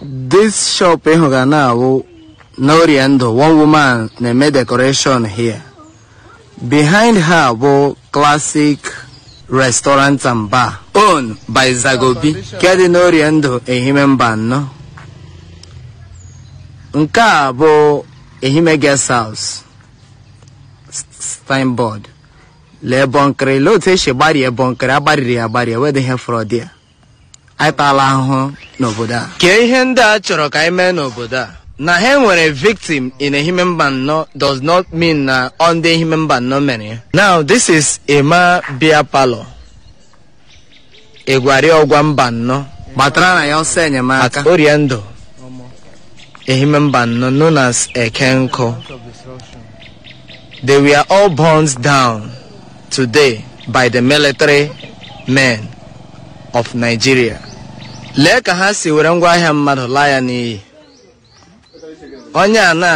This shop in Hogana will Noriendo, one woman na-eme decoration here. Behind her bụ classic restaurant and bar owned by Zagobi nke dị n'Oriendo Ehime Mba Anọ. Nke a bụ Ehime guest house signboard lee bọnkịrị lee otu esi gbarie bọnkịrị agbariri agbarie wedịghị frọdịa anyị taala ahụhụ n'obodo a kee ihe ndị a chọrọ ka anyị mee n'obodo a na ha nwere victim in a mba nnọ does not mean na ọ ndị human mba nnọ mere now this is Emma Bia Palo egwari ọgwa mba nnọ gbatara na ya ọsọ enyemaka ndụ ehime mba nnọ known as Ekenko they were all burned down today by the military men of Nigeria lee ka ha si were ngwaahịa mmadụ laa ya n'iyi onye a na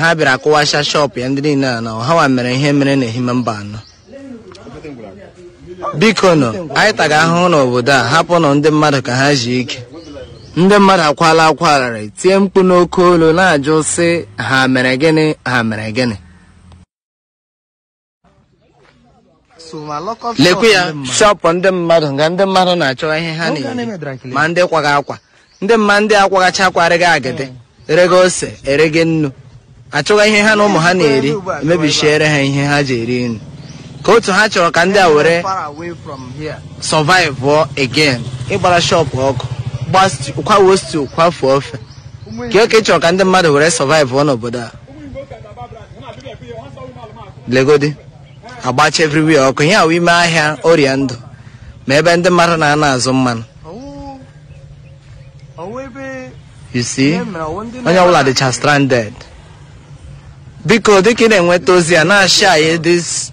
ha bịara akụwasha shọpụ ya ndị niile a na ọhawa mere ihe mere na n'ehime mba anọ biko nọ anyị taga ahụhụ n'obodo a hapụ nọ ndị mmadụ ka ha ji ike ndị mmadụ akwala akwa arịrị tie mkpu n'oke olu na-ajụ sị ha mere gịnị ha mere gịnị lekwe ya shọpụ ndị mmadụ nga ndị mmadụ na-achọ ihe ha na eh, eri e ma ndị kwaga akwa ndị mma ndị akwaghacha akwarịghị agịdị erego ose erege nnu achọghị ihe ha na ụmụ ha na-eri emebichiere ha ihe ha ji eri nri ka otu ha chọrọ ka ndị a were survive again ịgbara shọpụ ọkụ kwawo stu kwafuo ofe ka oke chọrọ ka ndị mmadụ were survive n'obodo a legodi agbacha everywhere ọkụ ihe ahụ ime ahịa ọrịa ndụ ma ebe ndị mmadụ na-ana azụ mmanụ onye ọbụla dịcha stranded biko dịka ị na-enweta ozi a na-ashị anyị this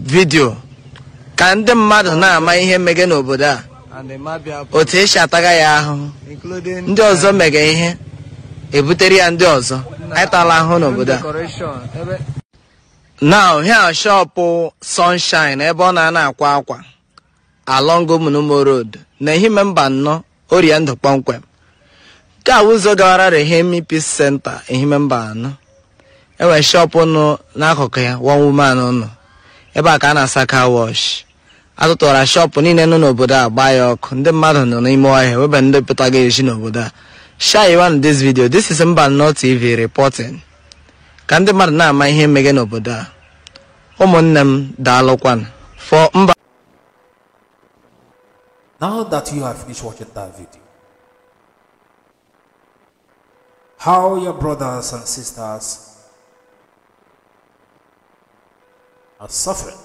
video ka ndị mmadụ na-ama ihe mmege n'obodo a otu esi ataga ya ahụhụ ndị ọzọ mege ihe ebutere ya ndị ọzọ anyị tala ahụhụ n'obodo a now here shop sunshine ebe ọ na-ana akwa akwa along Munumo road na ehime mba anọ orie ndụ kpọmkwem nke ụzọ gawara Rehemi Peace Center ehime mba anọ enwere shop nọ n'akụkụ ya one woman nọ ebe a ka a na-asa car wash atụtụwara shop niile nọ n'obodo a gbaa ya ọkụ ndị mmadụ nọ n'ime ọhịa webe ndị pụtaga esi n'obodo a share you this video this is Mbanọ TV reporting ka ndị mmadụ na-ama ihe mmege n'obodo a ụmụnne m daalụkwanụ fọ mba Now that you have finished watching that video, how your brothers and sisters are suffering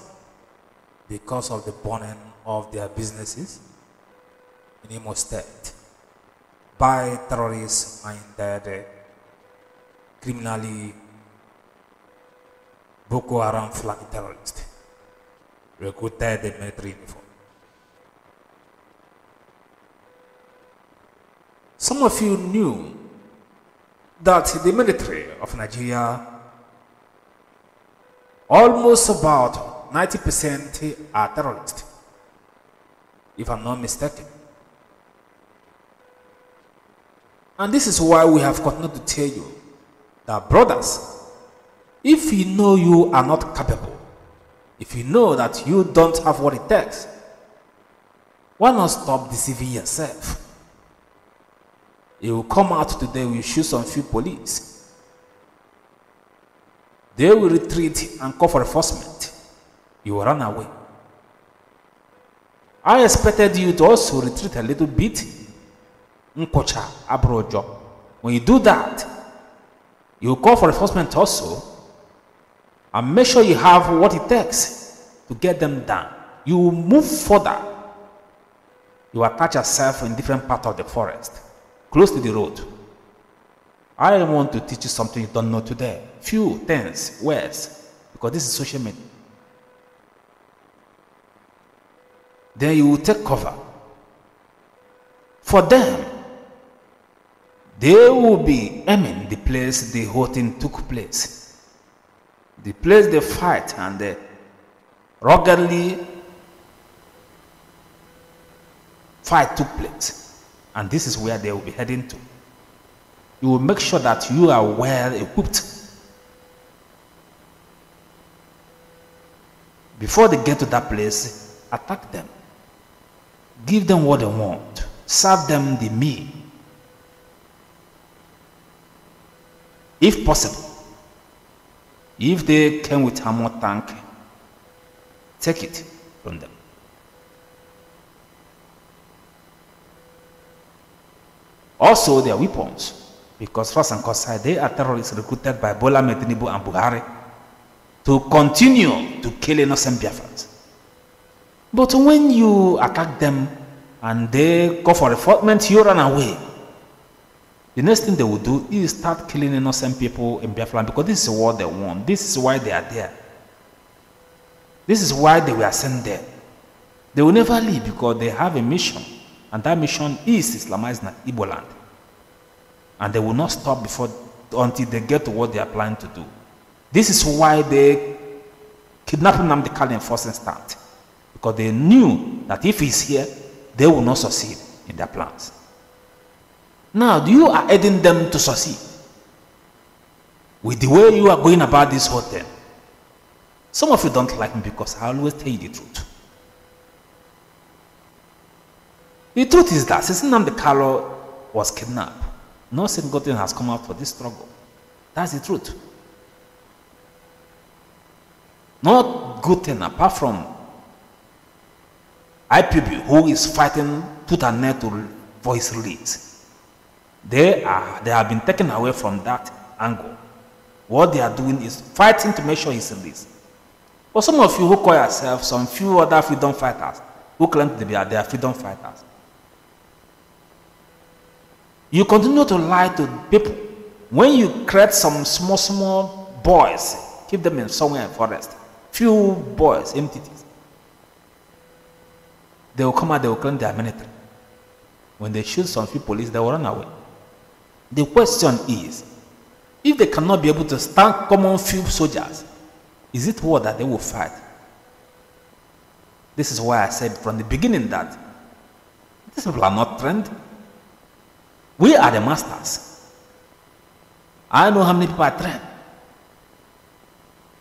because of the burning of their businesses in Imo State by terrorist minded, criminally Boko Haram flag terrorists recruited the military uniform. Some of you knew that the military of Nigeria almost about 90% are terrorists, if I'm not mistaken. And this is why we have continued to tell you that brothers if you know you are not capable, if you know that you don't have what it takes, why not stop deceiving yourself? You will come out today, with shoot some few police. They will retreat and call for enforcement. You will run away. I expected you to also retreat a little bit. abrojo. When you do that, you call for enforcement also and make sure you have what it takes to get them done. You move further. You attach yourself in different part of the forest, close to the road. I want to teach you something you don't know today. Few things, words, because this is social media. Then you will take cover. For them, they will be aiming the place the whole thing took place the place they fight and they ruggedly fight took place. And this is where they will be heading to. You will make sure that you are well equipped. Before they get to that place, attack them. Give them what they want. Serve them the meal. If possible, if they came with ammo tank, take it from them. Also their weapons, because first and Kossai, they are terrorists recruited by Bola Medinibu and Buhari to continue to kill innocent Biafrans. But when you attack them and they go for reinforcement, you run away. The next thing they will do is start killing innocent people in Biafra because this is what they want. This is why they are there. This is why they were sent there. They will never leave because they have a mission. And that mission is Islamize Igbo land. And they will not stop before until they get to what they are planning to do. This is why they kidnapped Namdi Kali in first instance. Because they knew that if he's here, they will not succeed in their plans. Now you are aiding them to succeed with the way you are going about this whole thing. Some of you don't like me because I always tell you the truth. The truth is that since the Carlo was kidnapped, no single thing has come out for this struggle. That's the truth. Not good thing apart from IPB who is fighting put an end to for his release. They, are, they have been taken away from that angle. What they are doing is fighting to make sure he's released. But some of you who call yourselves, some few other freedom fighters, who claim to be they are freedom fighters, you continue to lie to people. When you create some small, small boys, keep them in somewhere in forest, few boys, entities, they will come out, they will claim they are military. When they shoot some few police, they will run away. The question is, if they cannot be able to stand common field soldiers, is it war that they will fight? This is why I said from the beginning that these people are not trained. We are the masters. I know how many people are trained,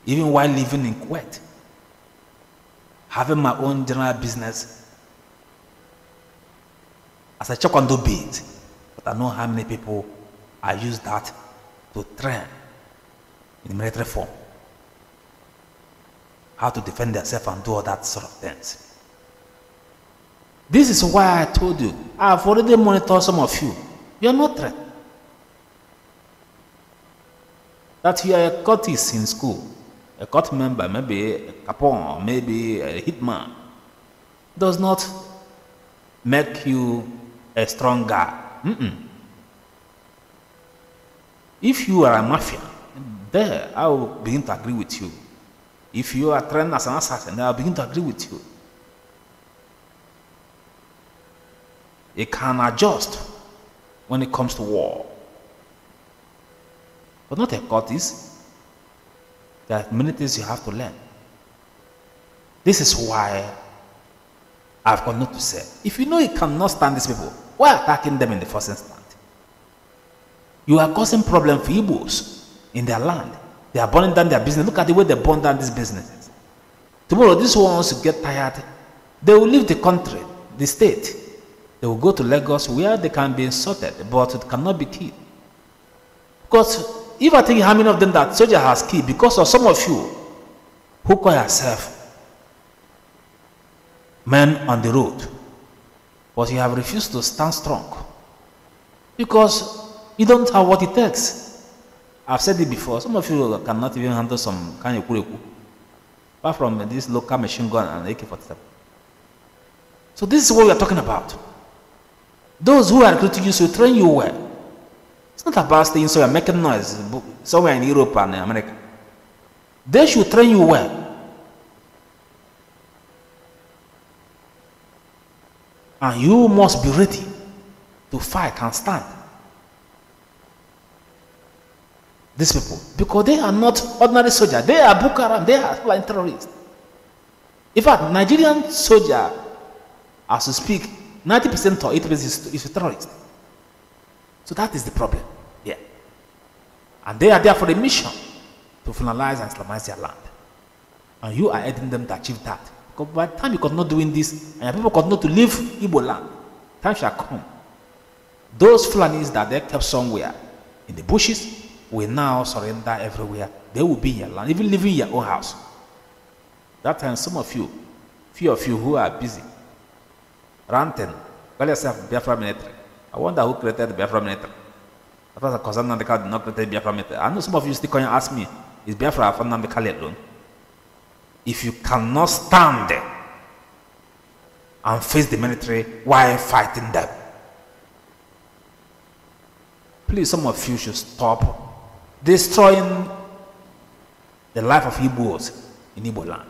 even while living in Kuwait, having my own general business as I check on the beat, but I know how many people I use that to train in military form how to defend yourself and do all that sort of things. This is why I told you, I've already monitored some of you. You're not threat. That you are a cultist in school, a cult member, maybe a capon, maybe a hitman, does not make you a strong guy. Mm -mm. If you are a mafia, there I will begin to agree with you. If you are trained as an assassin, I'll begin to agree with you. It can adjust when it comes to war. But not a is. There are many things you have to learn. This is why I've got nothing to say. If you know you cannot stand these people, why attacking them in the first instance? You are causing problem for Igbos in their land. They are burning down their business. Look at the way they burn down these businesses. Tomorrow, these ones get tired. They will leave the country, the state. They will go to Lagos where they can be insulted, but it cannot be killed. Because if I think how many of them that soldier has killed because of some of you who call yourself men on the road, but you have refused to stand strong. Because you don't have what it takes. I've said it before. Some of you cannot even handle some kind of kureku, apart from this local machine gun and AK-47. So this is what we are talking about. Those who are recruiting you should train you well. It's not about staying somewhere making noise somewhere in Europe and America. They should train you well. And you must be ready to fight and stand. these people because they are not ordinary soldiers. They are Boko Haram. They are like terrorists. In fact, Nigerian soldier, as we speak, 90% or 80% is, is a terrorist. So that is the problem. Yeah. And they are there for a mission to finalize and Islamize their land. And you are aiding them to achieve that. Because by the time you not doing this, and people not to leave Igbo land, time shall come. Those Fulanis that they kept somewhere in the bushes, will now surrender everywhere. They will be in your land, even living in your own house. That time, some of you, few of you who are busy, ranting, call yourself Biafra military. I wonder who created the Biafra military. That was a concern that did not create Biafra military. I know some of you still can ask me, is Biafra from Namikali alone? If you cannot stand and face the military while fighting them, please, some of you should stop destroying the life of Igbos in Igbo land.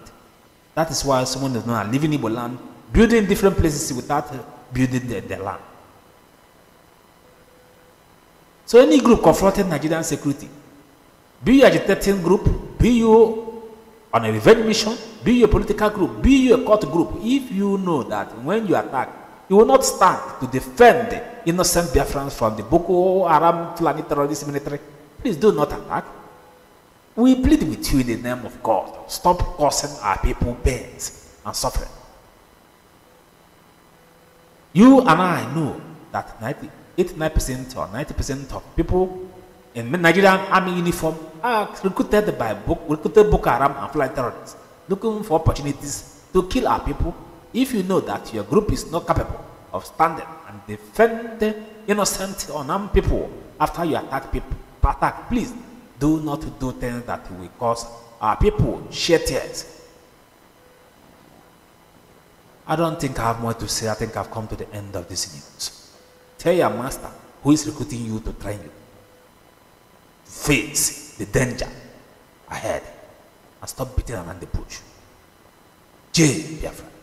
That is why someone is not leaving Igbo land, building different places without uh, building their, the land. So any group confronting Nigerian security, be you agitating group, be you on a revenge mission, be you a political group, be you a court group, if you know that when you attack, you will not stand to defend innocent Biafrans from the Boko Haram Fulani terrorist military, Please do not attack. We plead with you in the name of God. Stop causing our people pains and suffering. You and I know that 89% or 90% of people in Nigerian army uniform are recruited by book, recruited Boko Haram and flight terrorists looking for opportunities to kill our people if you know that your group is not capable of standing and defending innocent unarmed people after you attack people Patak, please do not do things that will cause our people shed tears. I don't think I have more to say. I think I've come to the end of this news. Tell your master who is recruiting you to train you. Face the danger ahead and stop beating around the bush. J. Biafra.